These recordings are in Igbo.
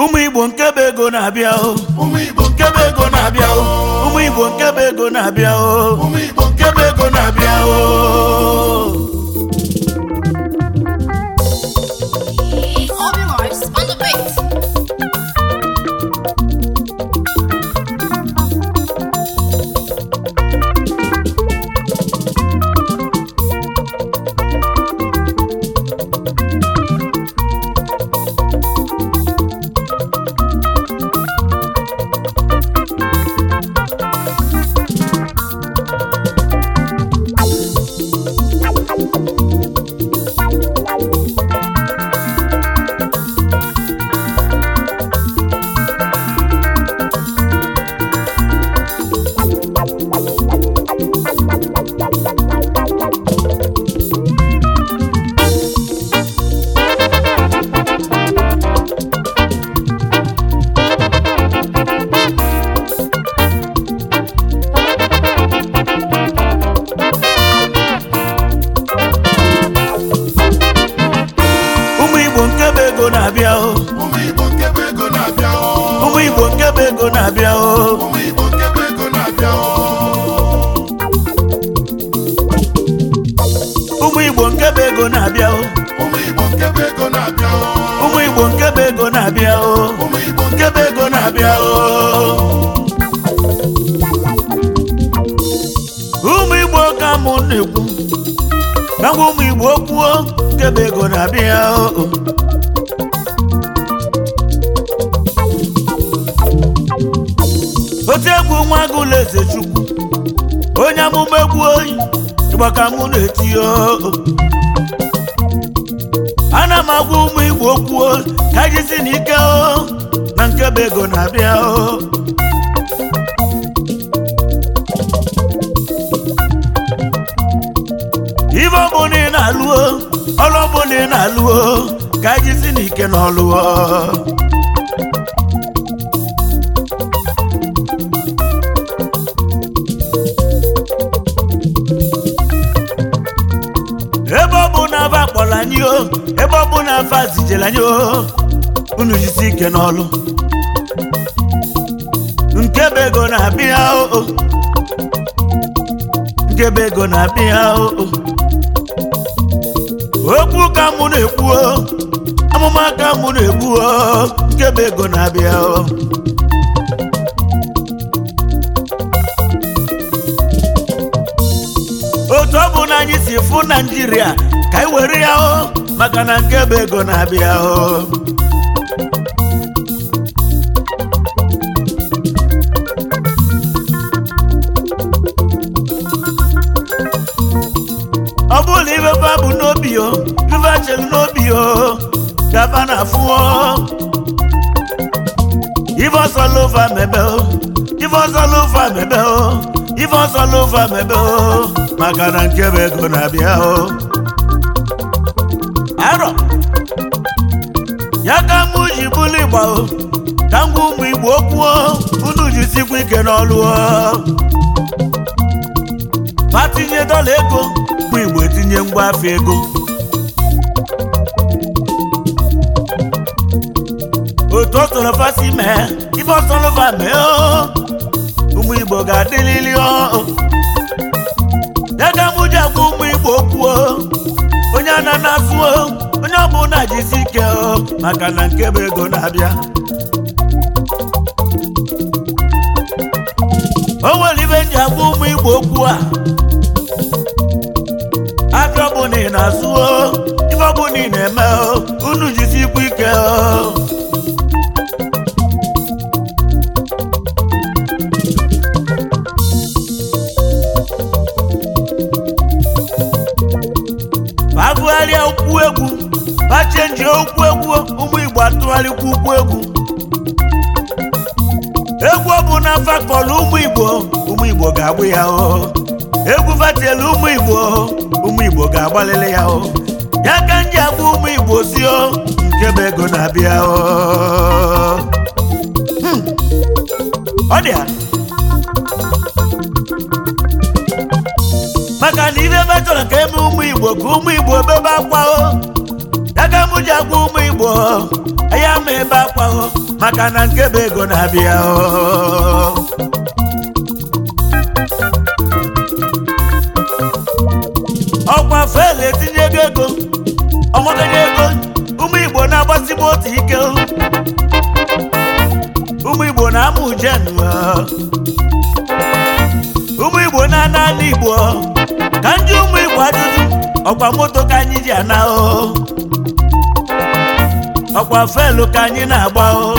ụmụ igbo nke bụ ego na-abịa o ụmụ igbo nke bụ ego na-abịa o ụmụ igbo nke bụ ego na-abịa o ụmụ igbo nke bụ ego na-abịa o na-ekwu na ụmụ igbo kwuo nke bụ ego na-abịa otu egwu nwa agụ eze chukwu onye amụba egwu oyi ịgbaka mụ na-eti oo ana m agwa ụmụ igbo kwuo ka jizi n'ike oo na nke bụ ego na-abịa ife ọbụla ị na-alụo ọrụ ị na ka jizi n'ike na ọlụọ ebe ọ na afa akpọrọ anyị o ebe ọ na afa anyị o unu ike n'ọlụ nkebe ego na-abịa ego na-abịa o okwu ka mụ na-ekwu amụma ka mụ na-ekwu nke bụ ego na-abịa otu ọ bụ na anyị si fụ naijiria ka anyị were ya maka na nke bụ ego na-abịa n'obi o river chelu n'obi o chava na afụ ife ọsọ lova mebe o ife ọsọ lova mebe o ife ọsọ lova mebe o maka na nkebe ego na-abịa o arọ ya ka mụ ji bụlụ ka ngwa ụmụ igbo okwuo unu jisikwa ike n'ọlụ ma tinye dọla ego bụ igbo tinye ngwa ego otu ọtọrọfasị mee ife ọtọrọfa mee ụmụ igbo ga-adịlili daga mụ ji agwa ụmụ igbo kwuo onye ana na onye ọbụla jisi ike maka na nke bụ ego na-abịa o nwere ibe ji agwa ụmụ igbo okwu a afọ ọbụ na ị na-azụ ife na ị na-eme unu jisi ikwu ike ha chenji okwu egwu ụmụ Igbo atụgharịkwa ukwu egwu egwu na fakọlụ ụmụ Igbo ụmụ Igbo ga-agbụ ya o egwu fatielu ụmụ Igbo ụmụ Igbo ga-agbalịlị ya o ya ka m ji agba ụmụ Igbo si o nke bụ ego na-abịa o hmm. ọ dị ya maka na ibe ebe chọrọ ka eme ụmụ Igbo ka ụmụ Igbo bebe akwa o ji agwa ụmụ igbo ya ma ebe akwaghọ maka na nke bụ ego na-abịa ọkwa fela etinye ego ego ego ụmụ igbo na-agbasibu otu ike ụmụ igbo na-amụ ujen ụmụ igbo na-ana ala igbo ka ndị ụmụ igbo ajụjụ ọkwa moto ka anyị ji ana ahụhụ ọkwa felu ka anyị na-agba o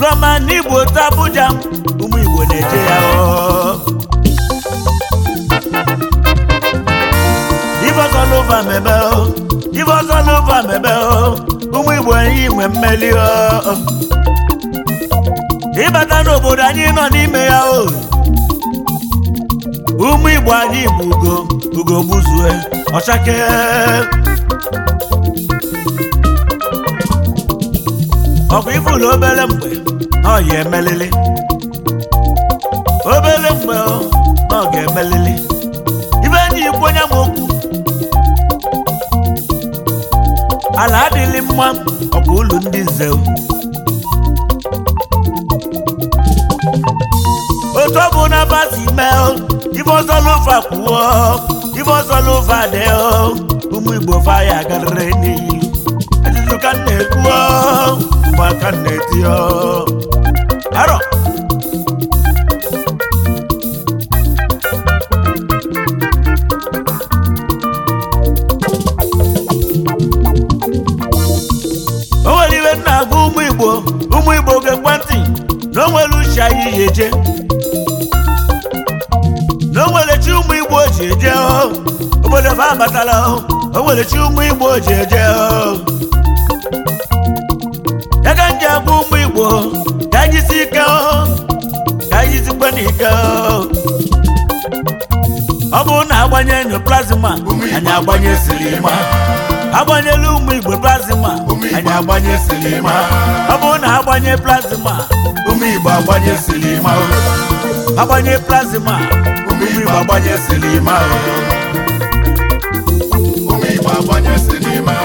roma n'igbo otu Abuja ụmụ Igbo na-eje ya o Ibeozoluva mebe o mebe ụmụ Igbo enyi nwe mmeli ịbata n'obodo anyị nọ n'ime ya o ụmụ Igbo anyị bụ ugo ugo gbuzue ọchake ọkwa na obere mgbe ọ ya emelili obere mgbe ọ ga-emelili ibe enyi ikwu onye m okwu ala adịghị mma ọkwa ụlọ ndị nze otu ọ bụ na basi mee ibe ọzọ n'ụfa kwuo ibe ọzọ n'ụfa dị ụmụ igbo faya ya garịrị n'iyi ajụjụ ka na-ekwu mbọ aka na-eti arọ o nwere iwe na ụmụ igbo ụmụ igbo oge ekwentị na o nwere uche anyị yi na o nwere chi ụmụ igbo ji eje oh. obodo fa abatala o oh. nwere chi ụmụ igbo ji eje oh. ọ bụrụ na agbanye nyo plazma anyị agbanye silima agbanyelu ụmụ igbo plazma anyị agbanye silima ọ bụrụ na agbanye plazma ụmụ igbo agbanye silima agbanye plazma ụmụ igbo agbanye silima ụmụ igbo agbanye silima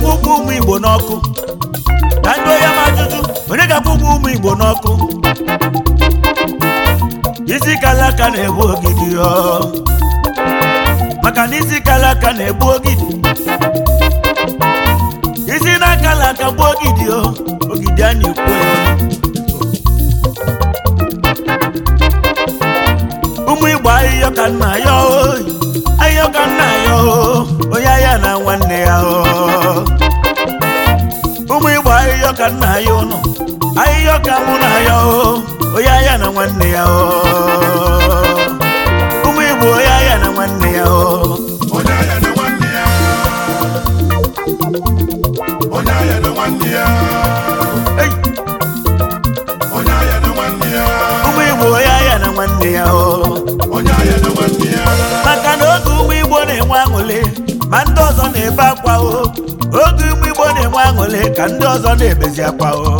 ga-akwụ ụgwọ ụmụ igbo n'ọkụ na ndị onye ma ajụjụ onye ga-akwụ ụgwọ ụmụ igbo n'ọkụ isi kala aka na-egbu ogidi maka na isi kala aka na-egbu ogidi isi na akala aka gbuo ogidi ogidi a na ya ụmụ igbo ahịhịa ka nna ya ahịhịa ka nna ya onye ya na nwanne ya ụmụ igbo ahịhịa ka nna ya ụnụ ahịhịa ka mụ na ya onye ya na nwanne ya ụmụ igbo onye ya na nwanne ya ma ndị ọzọ na-ebe akwa o oge ụmụ igbo na-enwe aṅụle ka ndị ọzọ na-ebezi akwa o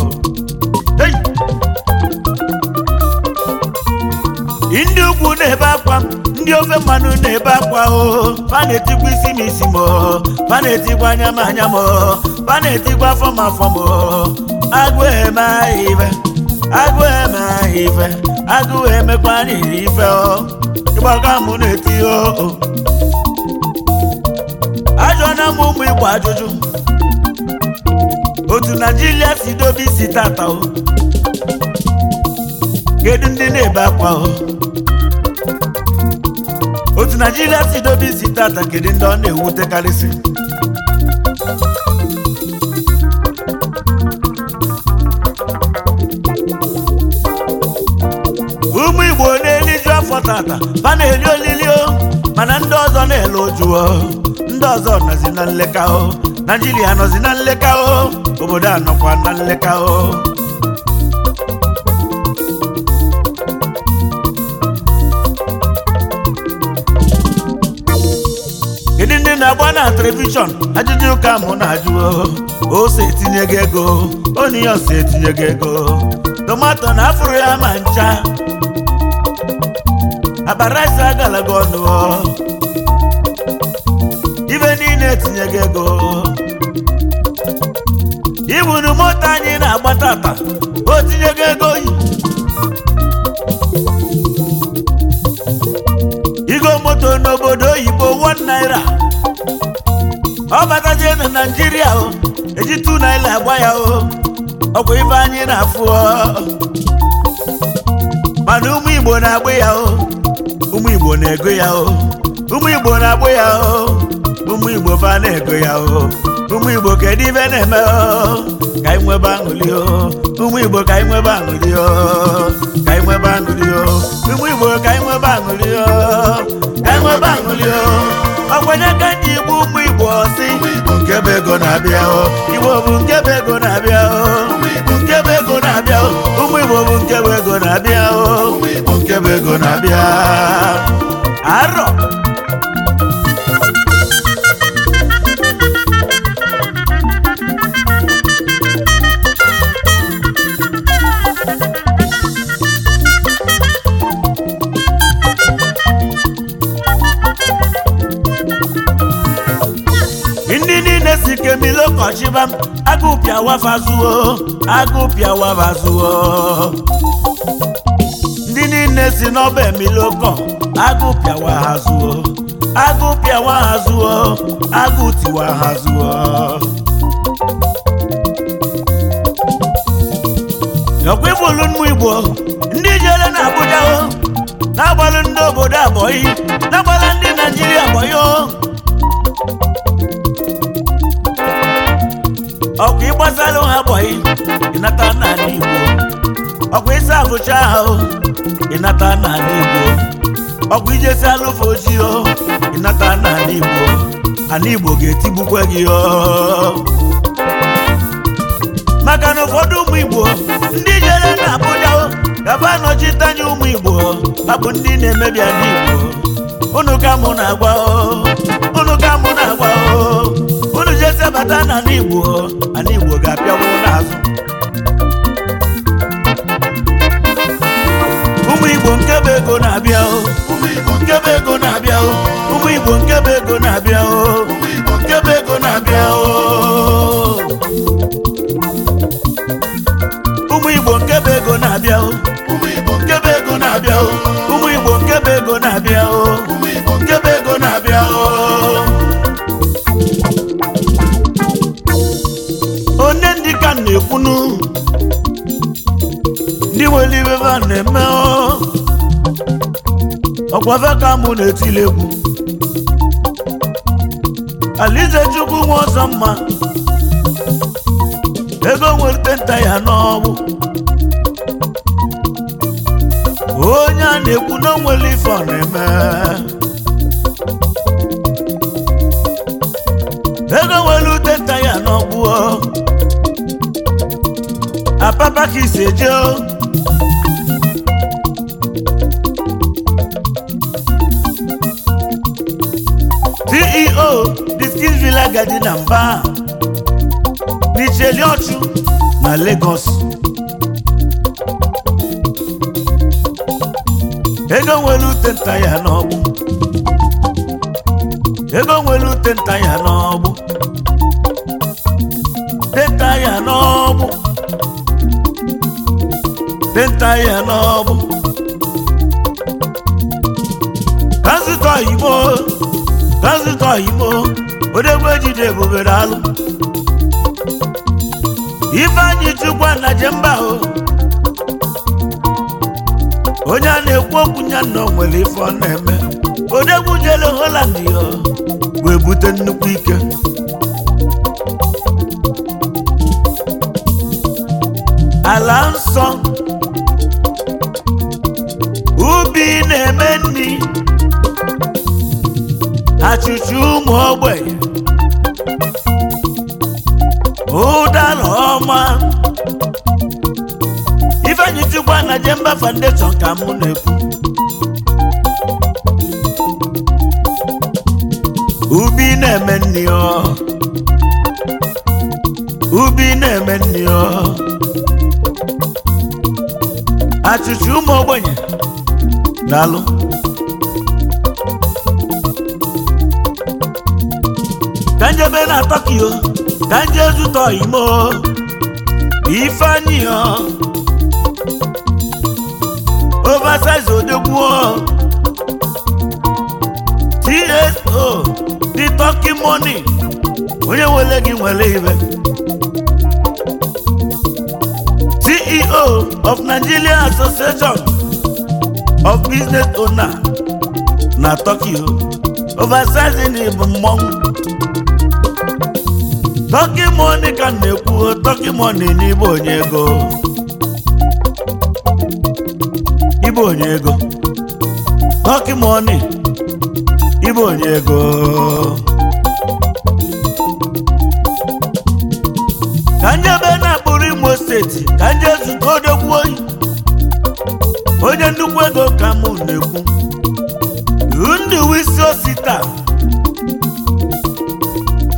ndị ukwu na-ebe akwa ndị ofe mmanụ na-ebe akwa o ma na-etigwa isi m isi m ma na-etigwa anya m anya m ma na-etigwa afọ m afọ m agụ eme ife agụ eme ife agụ emekwa n'iri ife ọ ịgbaga m na-eti o na mụ ụmụ igbo ajụjụ otu naijiria si dobe isi tata o kedu ndị na-ebe akwa o otu naijiria si dobe isi tata kedu ndị ọ na-ewutekarịsị ụmụ igbo na-eliju afọ tata ba na-eli olili o mana ndị ọzọ na-ele ojuo ndị ọzọ nọzi na nleka o naijiria nọzi na nleka o obodo a na nleka o kedu ndị na-agba na telivishọn ajụjụ ụka mụ na ajụọ. ose etinye gị ego onye ose etinye ego tomato na afụrụ ya ma ncha abaraisi agalaga ọnụ ibe niile tinye gị ego iburu moto anyị na-agba tata o tinye gị ego yi igo moto n'obodo oyibo one naira ọ batazie na naijiria o eji two naira agba ya o ọkwa ibe anyị na-afụ mana ụmụ igbo na-agba ya o ụmụ igbo na-ego ya o ụmụ igbo na-agba ya o ụmụ igbo fa na-ego ya o ụmụ igbo kedu ibe na-eme ka nwebe igbo ka anyị nwebe aṅụli o ka anyị nwebe ụmụ igbo ka anyị nwebe ka nwebe o ọkwanye ka ndị igbo ụmụ igbo si nke bụ ego na-abịa o igbo bụ nke be ego na-abịa igbo bụ ego na-abịa o ego na-abịa arọ ọchịba m agụpịa wafa zuo agụpịa wafa zuo ndị niile si n'ọba emilokọ agụpịa waha zuo agụpịa waha zuo agụtiwa ha zuo ọkwibụlu mmụ igbo ndị jere na Abuja o na-agbalụ ndị obodo abọyị na-agbalụ ndị Naijiria abọyị o Ọkụ ịgbazalụ ha gbọghị ịnata n'ala Igbo Ọkụ ịsa afụcha ahụ ịnata n'ala Igbo Ọkụ ijesi alụfe ojii o ịnata n'ala Igbo Ala Igbo ga-etigbukwe gị o maka na ụfọdụ ụmụ Igbo ndị jere na Abuja gaba anọchite anya ụmụ Igbo ha bụ ndị na-emebi ala Igbo unu ka mụ na-agwa o ka mụ na-agwa ezie bata n'ala Igbo ala Igbo ga-apịawo n'azụ ụmụ Igbo nke bụ ego na-abịa o ụmụ Igbo nke bụ ego na-abịa o ụmụ Igbo nke bụ ego na-abịa o ụmụ Igbo nke bụ ego na-abịa o ụmụ Igbo nke bụ ego na-abịa o ụmụ Igbo nke bụ ego na-abịa o ụmụ Igbo nke bụ ego na-abịa o na-eme ọkwafe ka mụ na-etili egwu alize chukwu nwe ọzọ mma ego nwere nta ya n'ọgwụ onye a na-ekwu na onwere ife ọ na-eme ego nwere ute nta ya n'ọgwụ apapa ka isi eje Kingsley agadi na mba Nicheliochu na Lagos ego nwere ute nta ya n'ọgbụ ego nwere ute nta ya n'ọgbụ denta ya n'ọgbụ denta ya n'ọgbụ transitọ igbo transitọ igbo odogwu ejide ebubere alụ anyị chukwa na jemba o onye a na-ekwu okwu nya na nwere ife ọ na-eme odogwu jere Holland ya wee bute nnukwu ike ala nsọ ọchịchị ụmụ ogbenye ụdara ọma ifeanyi chukwa na jemba foundation ka mụ na-ekwu ubi na-eme nri ọ ubi na-eme nri ọ achịchị ụmụ ogbenye daalụ ka njebe na tokyo ka nje zụtọ imo ifeanyiọ oversize odogbuo tso di tọki moni onye nwere gị nwere ibe ceo of nigeria association of business owner na tokyo oversize di mmọnwụ tọki mọni ka na-ekwu tọki mọni n'ịbụ onye ego ịbụ onye ego ọ onye ego ka ndị ebe na-akpụrụ imo seti ka ndị zụta odogwu oyi onye nnukwu ego ka mụ na-ekwu ndụ isi osi taa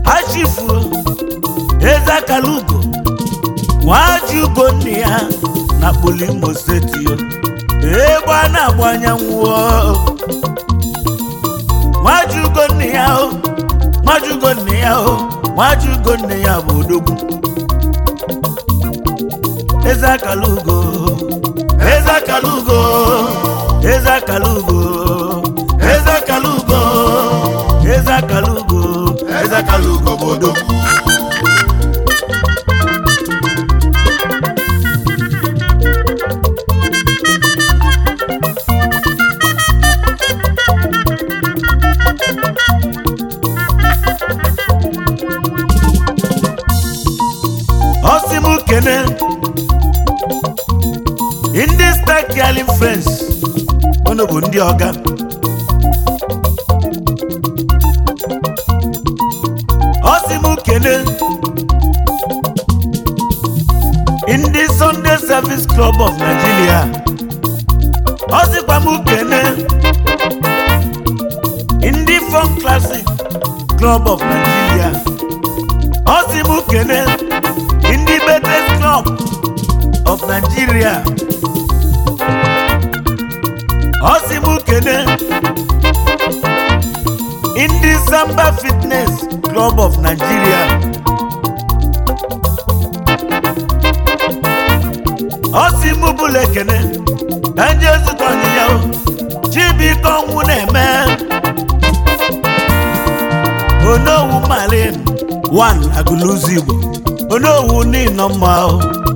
ha eze kalugo nwaji ugo nne ya na kpoli imo steeti egbe a na-agba anyanwụ nwaji ugo nne ya o nwaji ugo nne ya o nwaji ugo nne ya bụ odogwu eze akalugo ndị stak galin frens unu bụ ndị ọga ọ m kene ndị Sunday Service Club of Nigeria ọ m kene ndị Funk Classic Club of Nigeria ọ m kene ndị Betes Club of Nigeria ọ sị m kene ndị Samba Fitness Club of Nigeria ọ sị m bụla ekene ka ndị na-eme onowu malin 1 agụlụzi Igbo onowu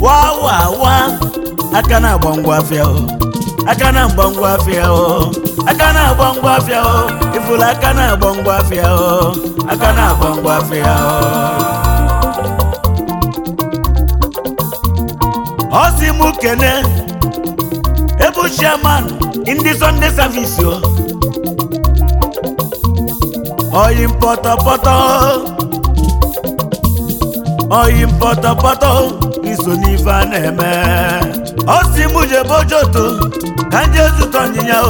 wa wa wa aka na-agba ngwa afịa aka na-agba ngwa afịa aka na-agba ngwa afịa ifuru aka na-agba ngwa afịa aka na-agba ngwa afịa ọ sị m kene ebu chairman ndị Sunday o oyi mpọtọpọtọ oyi mpọtọpọtọ iso n'ife a na ọ si jebe ka ndị zụta ọnyịnya o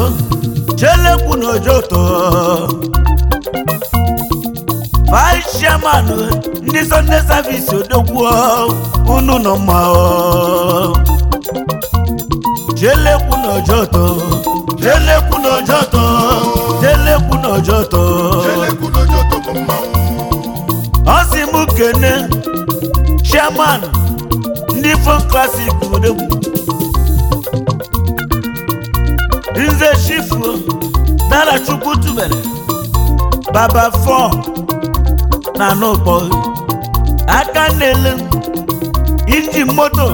chelekwu na ojoto vice ndị Sunday service unu nọ mma o chelekwu na ojoto chelekwu kene Chiffon classic odegwu nze chifuo dara chukwu tubere baba fọ na n'ụkpọ aka na-ele inji moto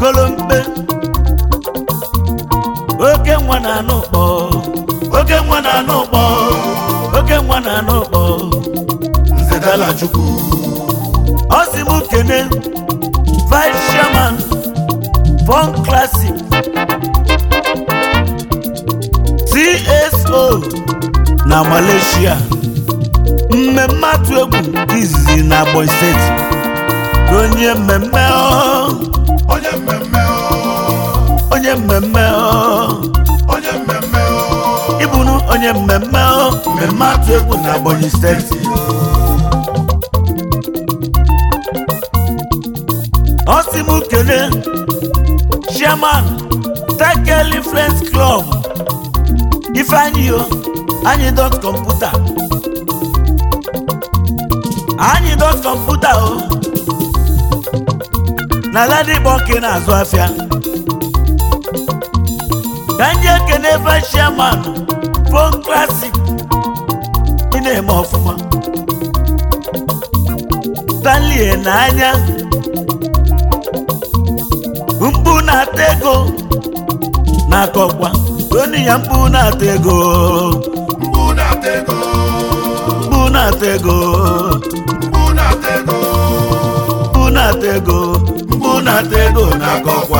golomkpe oke nwa na n'ụkpọ oke nwa na n'ụkpọ oke nwa na n'ụkpọ nze dara chukwu ọ sị m kene vice chairman classic tso na malaysia mmemme atụ egwu izizi na Ebonyi steeti onye mmemme onye mmemme onye mmemme onye mmemme ịbụnụ onye mmemme mmemme atụ egwu na Ebonyi steeti osi m kele chairman tekel influence club ifeanyi o anyị dot kọmputa anyị dot kọmputa o na ladigbo nke na-azụ afịa ka ndị ekene ebe chairman pon klasik ị na-eme ọfụma talie n'anya mkpu na-ata ego na-akọkwa onye ya mkpu na-ata ego mkpu na-ata ego mkpu na-ata ego mkpu na-ata ego mkpu na-ata ego mkpu na-ata ego na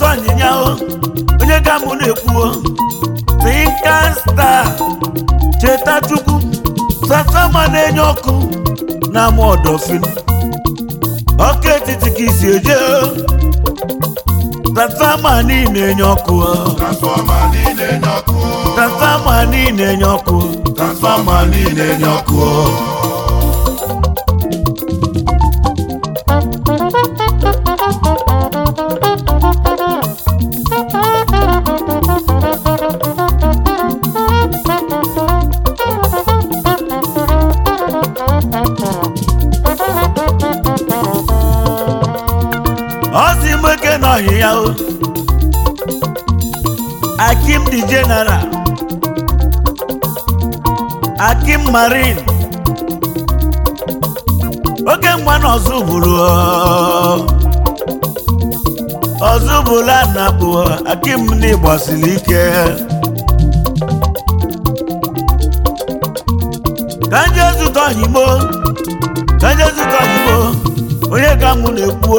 ka onye ga mụ na-ekwuo tinka cheta chukwu sasama na-enye ọkụ na-amụ ọdọfin ọkụ etiti ka isi eje transfọma niile enye ọkụ transfọma niile enye ọkụ transfọma niile enye ọkụ transfọma niile enye ọkụ Kogi Marine oke mgbanụ ọzụbụrụ ọzụbụla anapụ akim n'ịgbasiri ike ka nje zụta ohigbo ka nje zụta ohigbo onye ka mụ na-ekwu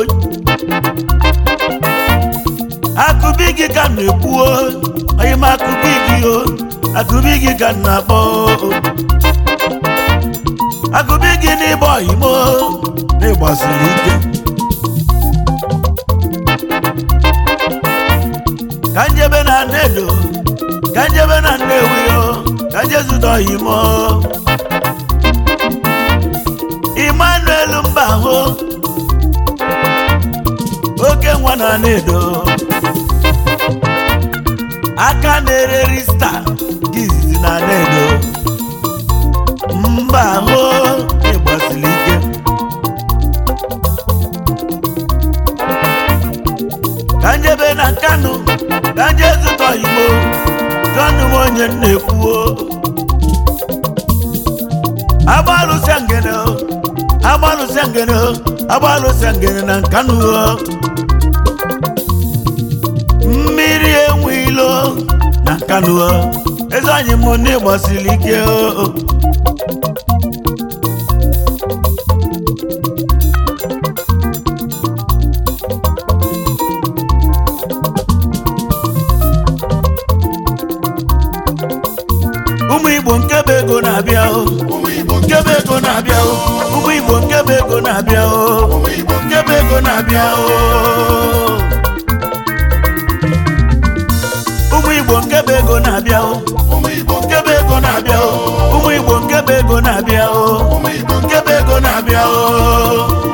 akụbi gị ka m na-ekwu onye m akụbi gị o akụbi gị ka m na-akpọ agụba gị n'ịbọ imo n'ịgbasiri ike ka njebe na nnedo ka njebe na nnewi ka njezudo imo Emmanuel Mbahụ oke nwa na nnedo aka na-ere rista gizizi na nnedo Mbahụ onye na-ekwuo agbalụsịa ngene na nkanuo mmiri enwe ilo na nkanu eze anyị m na ịgbasiri ike o na-abịa oh. ụmụ Igbo nkebe ego na-abịa na-abịa oh. ụmụ Igbo nkebe ego na-abịa na-abịa oh. ụmụ Igbo nkebe ego na-abịa na-abịa ụmụ Igbo nkebe ego na-abịa